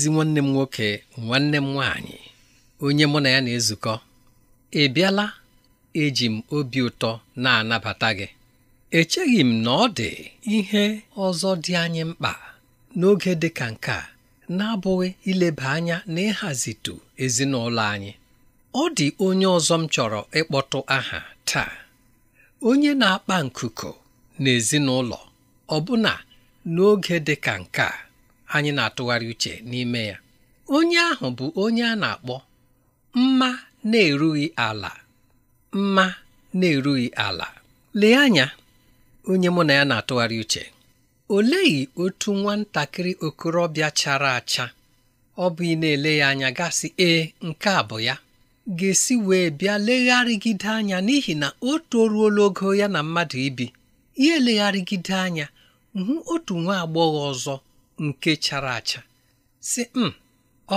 ezi nwanne m nwoke nwanne m nwanyị, onye mụ na ya na-ezukọ ị bịala eji m obi ụtọ na-anabata gị echeghị m na ọ dị ihe ọzọ dị anyị mkpa n'oge dị ka nke a na-abụghị ileba anya na ịhazitu ezinụlọ anyị ọ dị onye ọzọ m chọrọ ịkpọtụ aha taa onye na-akpa nkuku na ọbụna n'oge dị ka nke a anyị na-atụgharị uche n'ime ya onye ahụ bụ onye a na-akpọ mma na-erughị ala mma na-erughị ala lee anya onye mụ na ya na-atụgharị uche oleghị otu nwatakịrị okorobịa chara acha ọ bụ ị na-ele ya anya gasị ee nke a bụ ya ga-esi wee bịa legharịgide anya n'ihi na o toruola ogo ya na mmadụ ibi ya elegharịgide anya hụ otu nwa agbọghọ ọzọ nke chara acha si m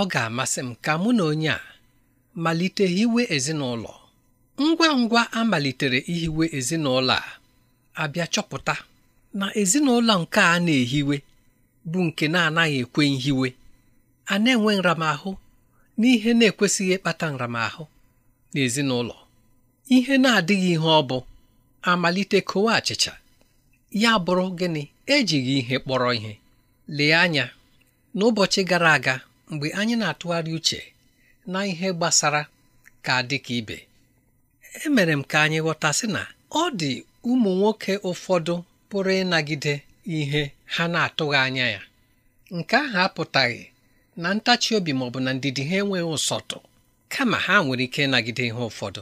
ọ ga-amasị m ka mụ na onye a malite hiwe ezinụlọ ngwa ngwa a malitere ihiwe ezinụlọ a abịa chọpụta na ezinụlọ nke a na-ehiwe bụ nke na-anaghị ekwe nhiwe a na-enwe nramahụ n'ihe na-ekwesịghị ịkpata nramahụ n'ezinụlọ ihe na-adịghị ihe ọ bụ amalite kowe achịcha ya bụrụ gịnị ejighị ihe kpọrọ ihe lee anya n'ụbọchị gara aga mgbe anyị na-atụgharị uche na ihe gbasara ka dị ka ibe emere m ka anyị ghọta sị na ọ dị ụmụ nwoke ụfọdụ pụrụ ịnagide ihe ha na-atụghị anya ya nke ahụ apụtaghị na ntachi obi maọbụ bụ na ndidi ha enweghị ụsọtụ kama ha nwere ike ịnagide ihe ụfọdụ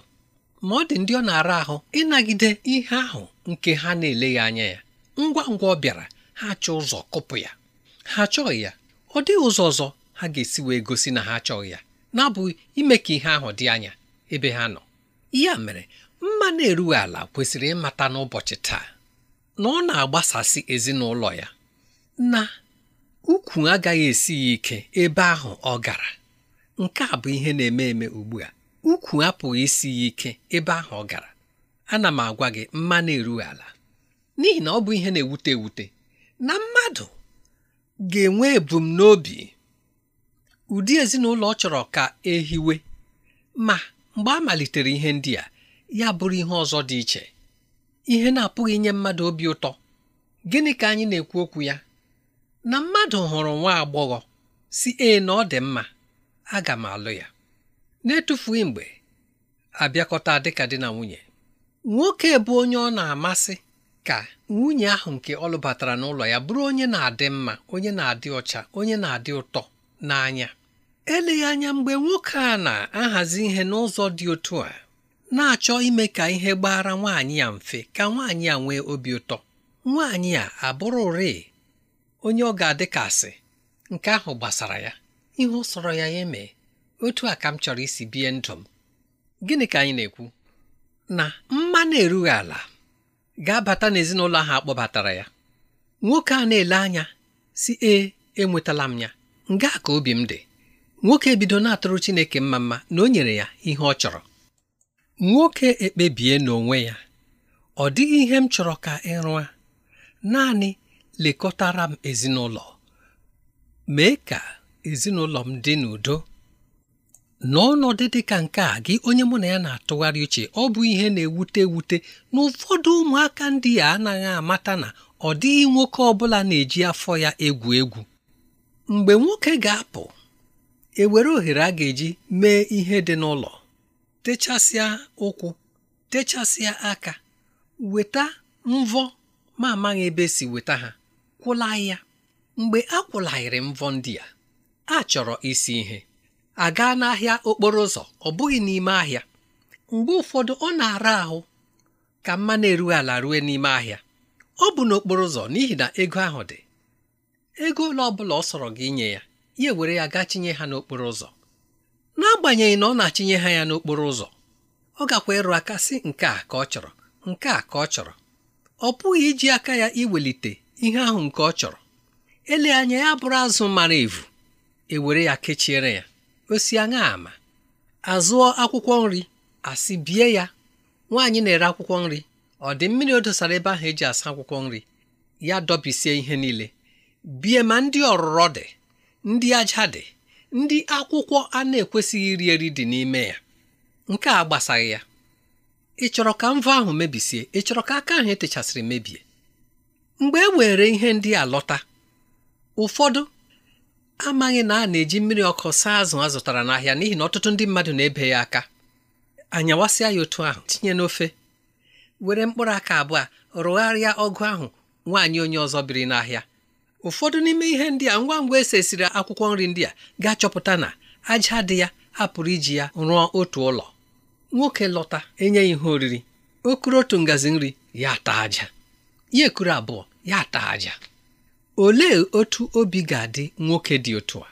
ma ọ dị ndị ọ na-ara ahụ ịnagide ihe ahụ nke ha na-eleghị anya ya ngwa ngwa ọ bịara ha chọọ ụzọ kụpụ ya ha achọghị ya ọ dịghị ụzọ ọzọ ha ga-esi wee gosi na ha achọghị ya na-abụghị ime ka ihe ahụ dị anya ebe ha nọ ya mere mma na-erughị ala kwesịrị ịmata n'ụbọchị taa na ọ na-agbasasị ezinụlọ ya na ukwu agaghị esi ya ike ebe ahụ ọ gara nke a bụ ihe na-eme eme ugbu a ukwu apụghị isi ya ike ebe ahụ ọ gara ana m agwa gị mma na-erughị ala n'ihi na ọ bụ ihe na-ewute ewute na mmadụ ga-enwe ebumnobi ụdị ezinụlọ ọ chọrọ ka ehiwe ma mgbe a malitere ihe ndị a ya bụrụ ihe ọzọ dị iche ihe na-apụghị inye mmadụ obi ụtọ gịnị ka anyị na-ekwu okwu ya na mmadụ hụrụ nwa agbọghọ si e na ọ dị mma aga m alụ ya na-etufughị mgbe abịakọta dịka di na nwunye nwoke bụ onye ọ na-amasị ka nwunye ahụ nke ọ lụbatara n'ụlọ ya bụrụ onye na-adị mma onye na-adị ọcha onye na-adị ụtọ n'anya eleghị anya mgbe nwoke a na-ahazi ihe n'ụzọ dị otu a na-achọ ime ka ihe gbara nwaanyị ya mfe ka nwaanyị ya nwee obi ụtọ nwaanyị a abụrụ rịị onye ọ ga adịkasị nke ahụ gbasara ya ihe ọ sọrọ ya ya emee otu a ka m chọrọ isi bie ndụ m gịnị ka anyị na-ekwu na mma na-erughị ala ga-abata n'ezinụlọ ahụ kpọbatara ya nwoke a na-ele anya si 'E enwetala m ya nga ka obi m dị nwoke ebido na-atụrụ Chineke mma mma na o nyere ya ihe ọ chọrọ nwoke ekpebie n'onwe ya ọ dịghị ihe m chọrọ ka ị naanị lekọtara m ezinụlọ mee ka ezinụlọ m dị n'udo n'ọnọdụ ọnọdụ dị ka nke a gị onye mụ na ya na-atụgharị uche ọ bụ ihe na-ewute ewute na ụfọdụ ụmụaka ndị a anaghị amata na ọ dịghị nwoke ọ bụla na-eji afọ ya egwu egwu mgbe nwoke ga-apụ ewere ohere a ga-eji mee ihe dị n'ụlọ techasịa ụkwụ techasịa aka weta mvọ ma amaghị ebe si weta ha kwụla ya mgbe a kwụlaghịrị mvọ ndị a a chọrọ isi ihe aga n'ahịa okporo ụzọ ọ bụghị n'ime ahịa mgbe ụfọdụ ọ na-ara ahụ ka mma na-erughị ala rue n'ime ahịa ọ bụ n'okporo ụzọ n'ihi na ego ahụ dị ego ole ọ bụla ọ sọrọ gị inye ya ya ewere ya gaa chinye ha n'okporo ụzọ n'agbanyeghị na ọ na-achinye ha ya n'okporo ụzọ ọ gakwa ịrụ aka sị nke a ka ọ chọrọ nke a ka ọ chọrọ ọ pụghị iji aka ya iwelite ihe ahụ nke ọ chọrọ ele anya ya bụrụ azụ mara evu ewere ya kechiere ya gosi anya ama azụọ akwụkwọ nri asị bie ya nwaanyị na-ere akwụkwọ nri ọ dị mmiri o dosara ebe ahụ eji asa akwụkwọ nri ya dọbisie ihe niile bie ma ndị ọrụrọ dị ndị aja dị ndị akwụkwọ a na-ekwesịghị iri eri dị n'ime ya nke a gbasaghị ya ị chọrọ ka mvọ ahụ mebisie ị chọrọ ka aka ahụ etechasịrị mebie mgbe e were ihe ndị a lọta ụfọdụ amaghị na a na-eji mmiri ọkụ saa azụ a zụtara n'ahịa n'ihi na ọtụtụ ndị mmadụ na-ebe ya aka anyawasịa ya otu ahụ tinye n'ofe were mkpụrụ aka abụọ rụgharịa ọgụ ahụ nwaanyị onye ọzọ biri n'ahịa ụfọdụ n'ime ihe ndị a ngwa ngwa esesiri akwụkwọ nri ndị a gaa chọpụta na aja dị ya apụrụ iji ya rụọ otu ụlọ nwoke lọta enye ya ihe oriri okuru otu ngazi nri ya taa aja ya ekuru abụọ ya taa aja olee otu obi ga-adị nwoke dị otu a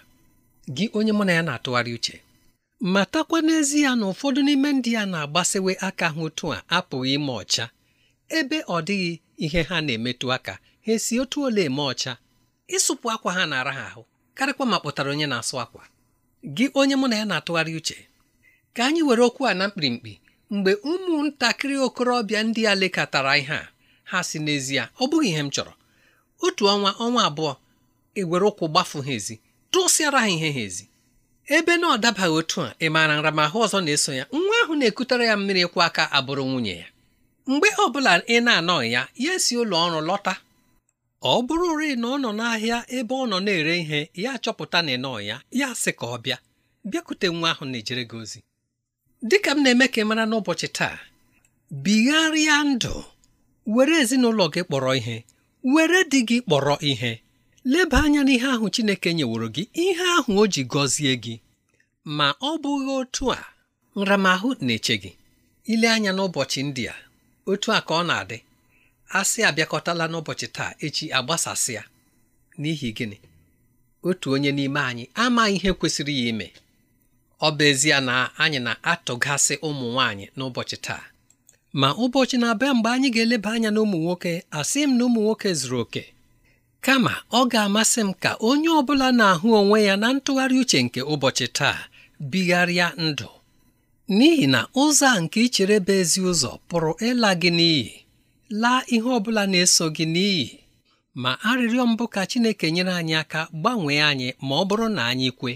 gị onye mụ na ya na-atụgharị uche matakwa n'ezie na ụfọdụ n'ime ndị ya na-agbasewe aka ha otu a apụghị ime ọcha ebe ọ dịghị ihe ha na-emetụ aka ha esi otu ole eme ọcha ịsụpụ akwa ha na-ara ha ahụ karịkwa ma kpụtara onye na-asụ akwa gị onye mụ na ya na-atụgharị uche ka anyị were okwu a na mkpirimkpi mgbe ụmụntakịrị okorobịa ndị a lekọtara ihe a ha si n'ezie ọ bụghị ihe m chọrọ otu ọnwa ọnwa abụọ ewere ụkwụ gbafu ha ezi tụsịara ha ihe ha ezi ebe na ọ dabaghị otu a ị maara nramahụ ọzọ na-eso ya nwa ahụ na-ekutere ya mmiri kwa aka abụrụ nwunye ya mgbe ọ bụla ị na-anọghị ya ya si ụlọ ọrụ lọta ọ bụrụrị na ọ nọ n'ahịa ebe ọ nọ na-ere ihe ya chọpụta na ịnọ ya ya sị ka ọ bịa bịakute nwa ahụ na-ejere gị ozi dịka m na-eme ka ị mara n'ụbọchị taa bigharịa ndụ were ezinụlọ gị kpọrọ ihe were di gị kpọrọ ihe leba anya n'ihe ahụ Chineke nyeworo gị ihe ahụ o ji gọzie gị ma ọ bụghị otu a nramahụ na-eche gị ile anya n'ụbọchị ndị a otu a ka ọ na-adị asị abịakọtala n'ụbọchị taa echi agbasasịa n'ihi gịnị otu onye n'ime anyị amaghị ihe kwesịrị ya ime ọ bụ ezie na anyị na-atụgasị ụmụ nwanyị n'ụbọchị taa ma ụbọchị na-abịa mgbe anyị ga-eleba anya n'ụmụ nwoke asị m na ụmụ nwoke zuru oke kama ọ ga-amasị m ka onye ọ bụla na-ahụ onwe ya na ntụgharị uche nke ụbọchị taa bigharịa ndụ n'ihi na ụzọ a nke ichere bụ ezi ụzọ pụrụ ịla gị n'iyi laa ihe ọ bụla na-eso gị n'iyi ma arịrịọ mbụ ka Chineke nyere anyị aka gbanwee anyị ma ọ bụrụ na anyị kwe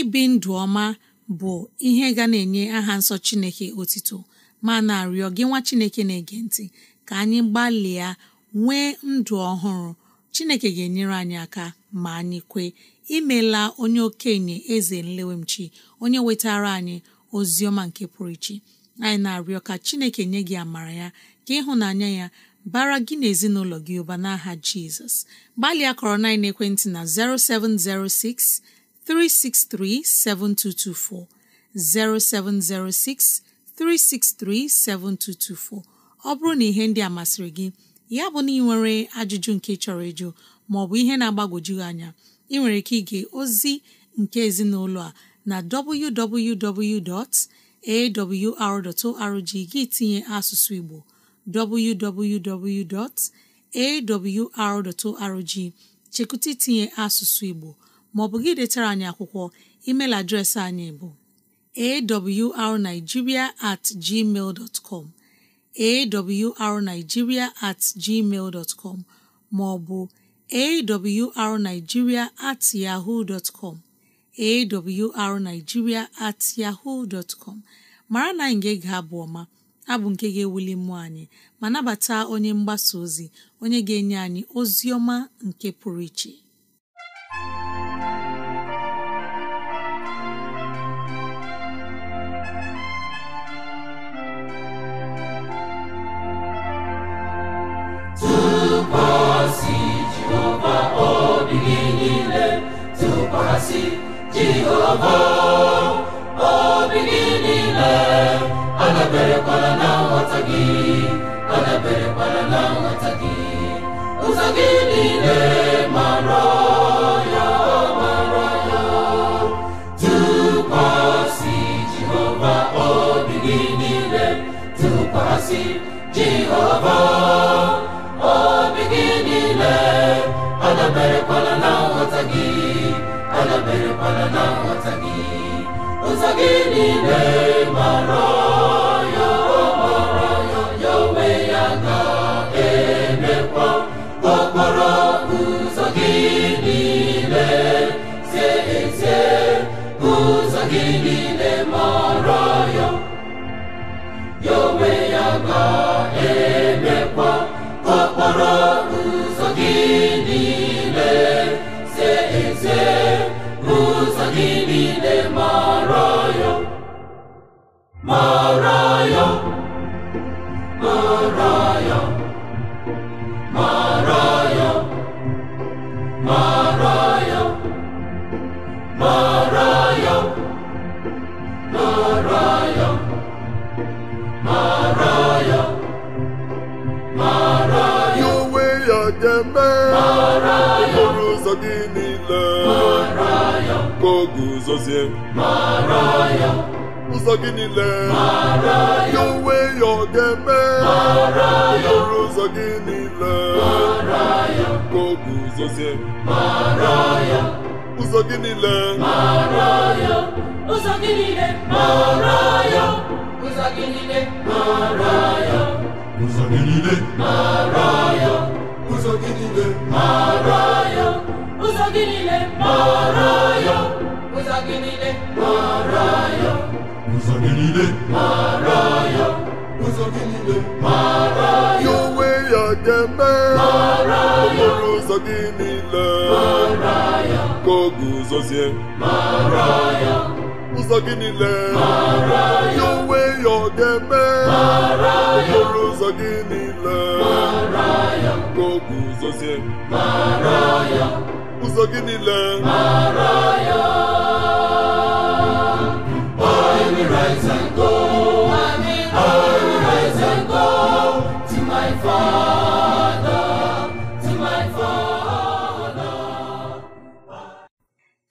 ibi ndụ ọma bụ ihe ga na-enye aha nsọ Chineke otito ma na-arịọ gị nwa Chineke na-ege ntị ka anyị gbalịa nwee ndụ ọhụrụ Chineke ga-enyere anyị aka ma anyị kwee imela onye okenye eze nlewemchi onye wetara anyị ozi ọma nke pụrụ iche anyị na-arịọ ka Chineke nye gị amara ya ka ịhụnanya ya bara gị na ezinụlọ gị ụba n'aha Jizọs gbalịa kọrọ na ekwentị na 0706 363 7224 0706 363 7224 ọ bụrụ na ihe ndị a masịrị gị ya bụ na ajụjụ nke chọrọ ịjụ ma ọ bụ ihe na-agbagwoju anya ị nwere ike ike ozi nke ezinụlọ a na www.awr.org gị tinye asụsụ Igbo www.awr.org chekụta itinye asụsụ Igbo bụ gị detara anyị akwụkwọ email adreesị anyị bụ arigiria at ma ọ com arigiria at com maọbụ arigiria at com at yahoo mara na anyị ga-ege abụ ọma abụ nke ga-ewuli mmụọ anyị ma nabata onye mgbasa ozi onye ga-enye anyị ozi ọma nke pụrụ iche asị jehova obi oh, gị niile adaberekwala na nghọta gị adaberekwala na nghọta gị ụzọ gị niile mara ya mara ya tụkwasị niile emerekwana na nghọta gị ụzọ gị niile mara ya mara ya onwe ya ga-emekwa ụzọ gị niile ụzọ gị ya. gị niile ka o guzozie mara ya ụzọ gị niile ya onwe ya ọ ga-eme ọrụ ụzọ gị niile ka o guzozie ụzọ ụzọ gị niile ụzọ gị niile ụzọ gị niile ụzọ gị niile ụzọ gị niile ụzọ gị niile ụzọ gị niile mara ya ụzọ gị niile mara ya onwe ya ga-eme mara ya okporo ụzọ gị niile mara ya ka ọ guzozie mara ya ụzọ gị niile mara ya onwe ya ọ ga mara ya okporo ụzọ gị niile mara ya ka ọ guzozie mara ya ụzọ gị niile mara ya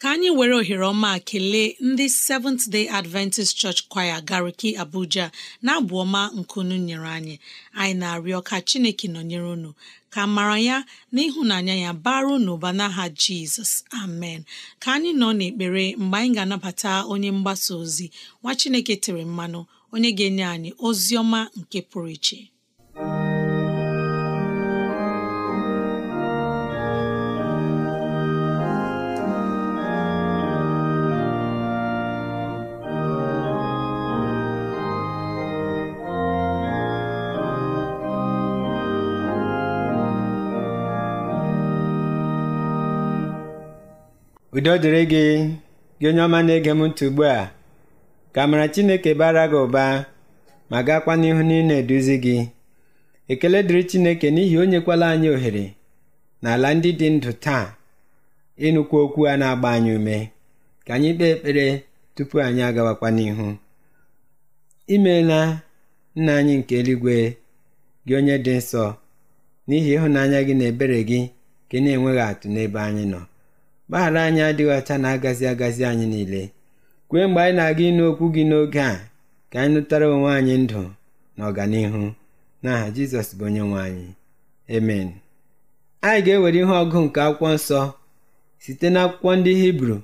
ka anyị were ohere ọma kelee ndị Seventh Day Adventist Church Choir Gariki Abuja na-abụ ọma nkunu nyere anyị anyị na-arịọ ka Chineke nọnyere unu ka mara ya na ịhụnanya ya bara n'ụba n'aha Jizọs amen ka anyị nọ n'ekpere mgbe anyị ga-anabata onye mgbasa ozi nwa Chineke tere mmanụ onye ga-enye anyị ozi ọma nke pụrụ iche udo dịrị gị gị onye ọma na-ege m ntị ugbu a ka amara chineke bara gị ụba ma gaakwa n'ihu na ị na-eduzi gị ekele dịrị chineke n'ihi o nyekwala anyị ohere n'ala ndị dị ndụ taa ịnụkwu okwu a na-agba anyị ume ka anyị kpee ekpere tupu anyị agawakwa n'ihu imeela nna anyị nke eluigwe gị onye dị nsọ n'ihi ịhụnanya gị na ebere gị ka ị na-enweghị atụ n'ebe anyị nọ mgbaghara anyị adịghị ọcha na-agazi agazi anyị niile kwee mgbe anyị na-aga ịnụ okwu gị n'oge a ka anyị nụtara onwe anyị ndụ na ọganihu n'aha jizọs bụ onye nwe anyị amen anyị ga-ewere ihe ọgụ nke akwụkwọ nsọ site n'akwụkwọ ndị hibru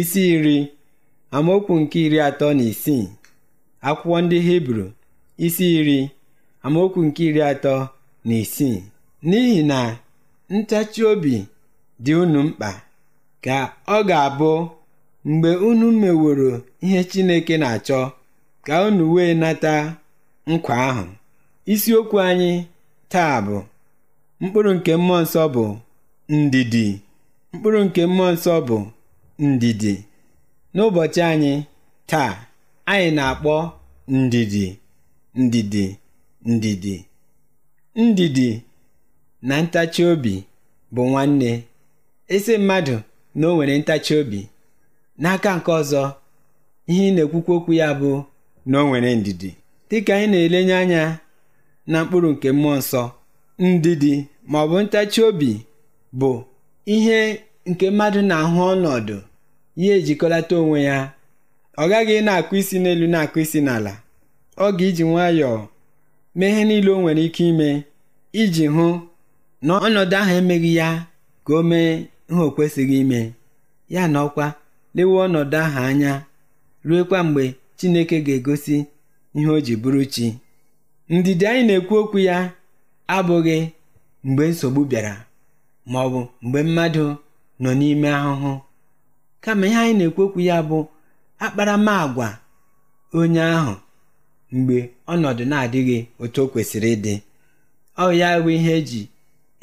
isi iri amaokwu nke iri atọ na isii akwụkwọ ndị hibru isi iri amaokwu nke iri atọ na isii n'ihi na ntachi obi dị unu mkpa ka ọ ga-abụ mgbe unu meworo ihe Chineke na-achọ ka unu wee nata nkwa ahụ. Isiokwu anyị taa bụ mkpụrụ nke mmụọ nsọ bụ ndidi mkpụrụ nke mmụọ nsọ bụ ndidi n'ụbọchị anyị taa anyị na-akpọ ndidi ndidi ndidi ndidi na ntachi obi bụ nwanne isi mmadụ na o nwere ntachi obi n'aka nke ọzọ ihe ị na-ekwukwa okwu ya bụ na o nwere ndidi dịka anyị na-elenye anya na mkpụrụ nke mmụọ nsọ ndidi ma ọ bụ ntachi obi bụ ihe nke mmadụ na-ahụ ọnọdụ ya ejikọlata onwe ya ọ gaghị na-akụ isi n'elu na-akụ isi n'ala ọ ga-iji nwayọọ mee ihe niile o nwere ike ime iji hụ na ọnọdụ ahụ emeghị ya ka o mee nha o kwesịghị ime ya na ọkwa lewe ọnọdụ ahụ anya ruekwa mgbe Chineke ga-egosi ihe o ji bụrụ chi ndidi anyị na-ekwu okwu ya abụghị mgbe nsogbu bịara ma ọ bụ mgbe mmadụ nọ n'ime ahụhụ kama ihe anyị na-ekwu okwu ya bụ akparamagwa onye ahụ mgbe ọnọdụ na-adịghị otu o kwesịrị ịdị ọ ya bụ ihe eji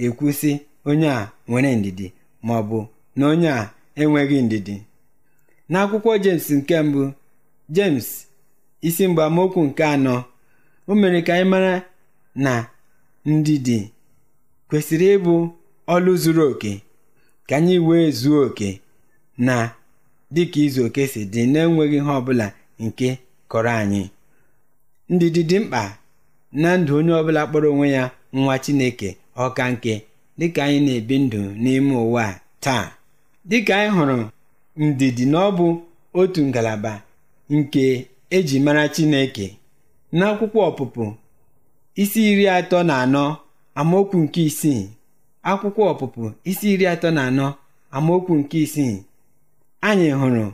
ekwu sị onye a nwere ndidi ma ọ bụ na onye a enweghị ndidi n'akwụkwọ jems nke mbụ jems isi mgbamokwu nke anọ o mere ka anyị mara na ndidi kwesịrị ịbụ ọlụ zuru oke ka anyị wee zuo oke na dịka izu oke si dị na-enweghị ihe ọbụla nke kọrọ anyị ndidi dị mkpa na ndụ onye ọbụla kpọrọ onwe ya nwa Chineke ọka nke dịka anyị na-ebi ndụ n'ime ụwa taa dịka anyị hụrụ ndidi na ọ bụ otu ngalaba nke eji mara Chineke n'akwụkwọ ọpụpụ isi iri atọ na anọ amaokwu nke isii akwụkwọ ọpụpụ isi iri atọ na anọ amaokwu nke isii anyị hụrụ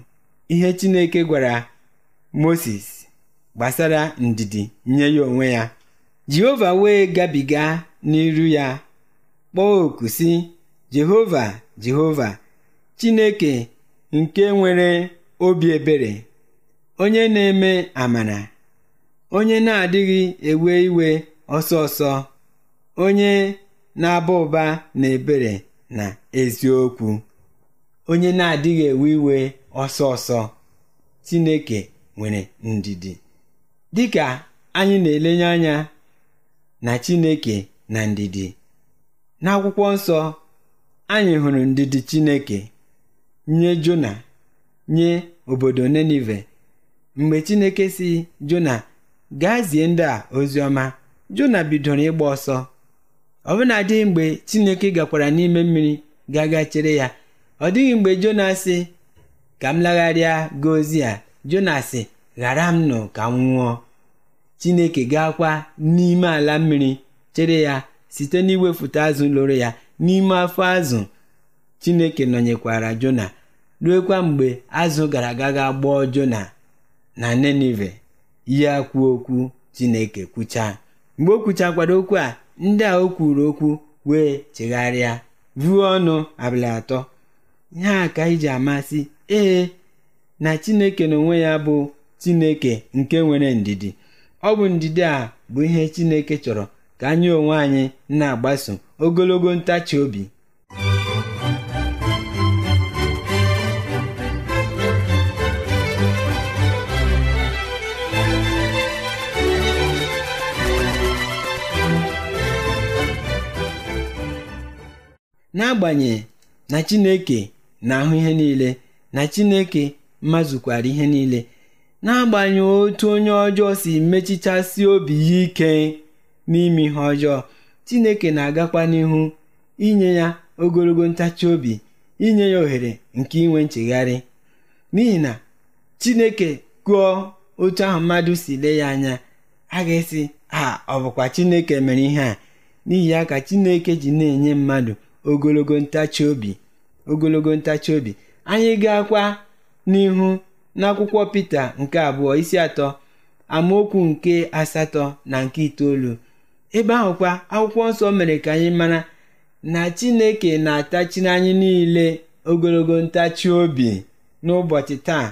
ihe Chineke gwara Moses gbasara ndidi nye ya onwe ya Jehova wee gabiga n'iru ya kpọọ oku si Jehova Jehova Chineke nke nwere obi ebere onye na-eme amara onye na-adịghị ewe iwe ọsọ ọsọ onye na-aba ụba na ebere na eziokwu onye na-adịghị ewe iwe ọsọ ọsọ Chineke nwere ndidi ka anyị na-elenye anya na Chineke na ndidi n'akwụkwọ nsọ anyị hụrụ ndidi Chineke nye Jona nye obodo Nenive mgbe Chineke si Jona gaa zie ndị a ozi ọma Jona bidoro ịgba ọsọ ọ dịghị mgbe Chineke gakwara n'ime mmiri gaga chere ya ọ dịghị mgbe Jona sị ka m lagharịa gaa a Jona sị ghara m nụ ka m nwụọ Chineke gaakwa n'ime ala mmiri chere ya site n'iwefute azụ lụrụ ya n'ime afọ azụ chineke nọnyekwara jona ruekwa mgbe azụ gara aga ga gbọọ jona na nenive ya kwuo okwu chineke kwuchaa mgbe o kwuchakwara okwu a ndị a o kwuru okwu wee chegharịa vuo ọnụ abalị atọ ihe a ka iji amasị ee na chineke n'onwe ya bụ chineke nke nwere ndidi ọ bụ ndidi a bụ ihe chineke chọrọ ka anyị onwe anyị na-agbaso ogologo ntachi obi n'agbanyeghị na Chineke na-ahụ ihe niile na Chineke mazụkwara ihe niile n'agbanyeghị otu onye ọjọọ si mechichasi obi ya ike n'ime ihe ọjọọ Chineke na-agakwa n'ihu inye ya ogologo ntachi obi inye ya ohere nke inwe nchegharị n'ihi na Chineke kụọ otu ahụ mmadụ si lee ya anya a ga-esi ha ọ bụkwa Chineke mere ihe a n'ihi ya ka Chineke ji na-enye mmadụ ogologo ntachi obi ogologo ntachi obi anyị ga-akwa n'ihu n'akwụkwọ Pita nke abụọ isi atọ amaokwu nke asatọ na nke itoolu ebe ahụkwa akwụkwọ nsọ mere ka anyị mara na chineke na atachi anyị niile ogologo ntachi obi n'ụbọchị taa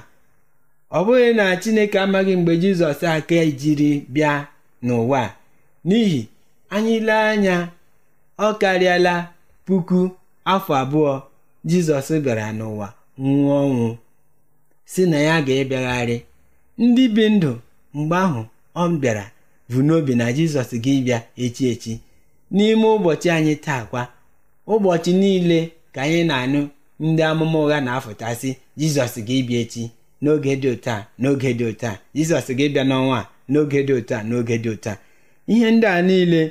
ọ bụghị na chineke amaghị mgbe jizọs aka jiri bịa n'ụwa n'ihi anyị lee anya ọ karịala puku afọ abụọ jizọs bịara n'ụwa nwụọ ọnwụ si na ya ga-abịagharị ndị bi ndụ mgbe ahụ ọ bịara vu n'obi na jizọs gị bịa echi echi n'ime ụbọchị anyị taa kwa ụbọchị niile ka anyị na-anụ ndị amụma ụgha na-afụtasị jizọs ga-ebịa echi n'oge dị ụta n'oge dị ụta jizọs ga n'ọnwa n'oge dị ụta n'oge dị ụta ihe ndị a niile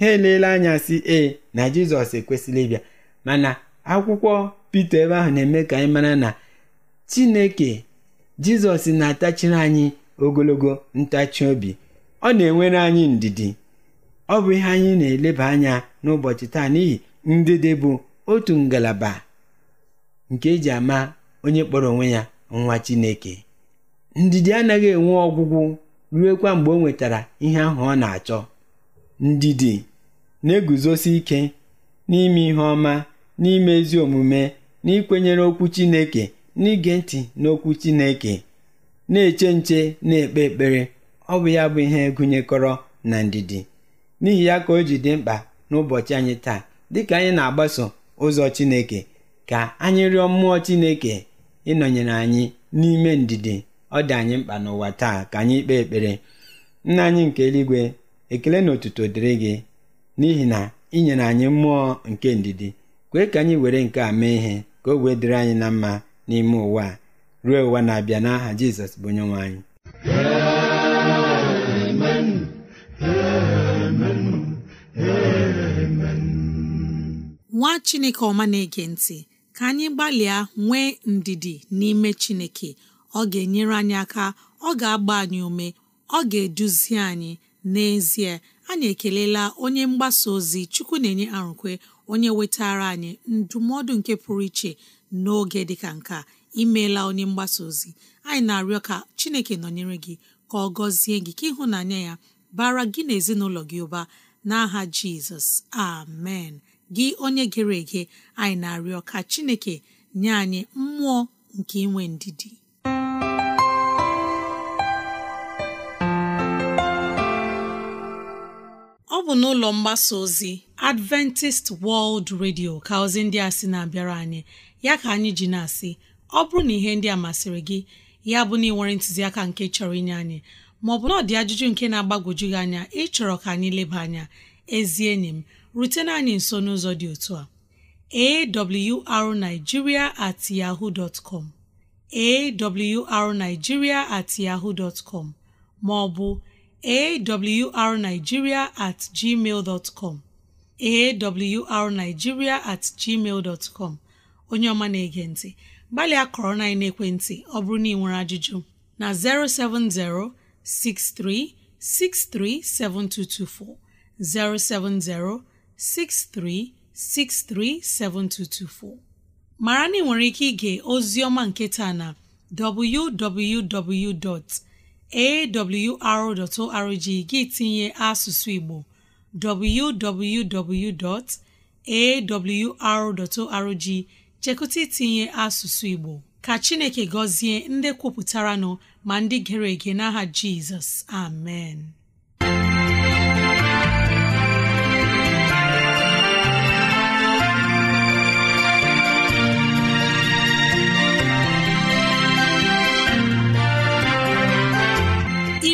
ha eleela anya si ee na jizọs ekwesịrị ịbịa mana akwụkwọ pete ebe ahụ na-eme ka anyị mara na chineke jizọs na-atachiri anyị ogologo ntachi obi ọ na-enwere anyị ndidi ọ bụ ihe anyị na-eleba anya n'ụbọchị taa n'ihi ndidi bụ otu ngalaba nke eji ama onye kpọrọ onwe ya nwa Chineke ndidi anaghị enwe ọgwụgwụ ruekwa mgbe o nwetara ihe ahụ ọ na-achọ ndidi na-eguzosi ike n'ime ihe ọma n'ime ezi omume n'ikwenyere okwu Chineke n'ige ntị n'okwu Chineke na-eche nche na-ekpe ekpere ọ bụ ya bụ ihe gụnyekọrọ na ndidi n'ihi ya ka o ji dị mkpa n'ụbọchị anyị taa dịka anyị na-agbaso ụzọ Chineke ka anyị rịọ mmụọ Chineke ịnọnyere anyị n'ime ndidi ọ dị anyị mkpa n'ụwa taa ka anyị kpee ekpere nna anyị nke eluigwe ekele na otuto dịrị gị n'ihi na ị nyere anyị mmụọ nke ndidi kwee ka anyị were nke a mee ihe ka o wee dịrị anyị na mma n'ime ụwa ruo ụwa na-abịa n'aha Jizọs bụ nwe anyị nwa chineke ọma na-ege ntị ka anyị gbalịa nwee ndidi n'ime chineke ọ ga-enyere anyị aka ọ ga-agba anyị ume ọ ga-eduzi anyị n'ezie anyị ekelela onye mgbasa ozi chukwu na-enye arụkwe onye wetara anyị ndụmọdụ nke pụrụ iche n'oge dịka nka a imeela onye mgbasa ozi anyị na-arịọ ka chineke nọnyere gị ka ọ gọzie gị ka ịhụnanya ya bara gị na ezinụlọ gị ụba n'aha jizọs amen gị onye gere ege anyị na-arịọ ka chineke nye anyị mmụọ nke inwe ndidi ọ bụ n'ụlọ mgbasa ozi Adventist World Radio ka ozi ndị a sị na-abịara anyị ya ka anyị ji na-asị ọ bụrụ na ihe ndị a masịrị gị ya bụ na ị nwere ntụziaka nke chọrọ inye anyị maọbụ na ọ dị ajụjụ nke na-agbagwoju gị anya ịchọrọ ka anyị leba anya ezi enyi m rutena anyị nso n'ụzọ dị otu a awrnigeria at yahoo awrnigeria at yahoo ma ọ bụ awrnigeria at gmail awrnigeria at gmail onye ọma na-ege ntị gbalịa kọrọ na ekwentị ọ bụrụ na ị nwere ajụjụ na 070 6363 7224 070 63637224 mara na ị nwere ike ige oziọma nketa na arrg gị tinye asụsụ Igbo www.awr.org chekụta itinye asụsụ Igbo ka Chineke gọzie ndị kwupụtara nọ ma ndị gere ege n'aha Jizọs amen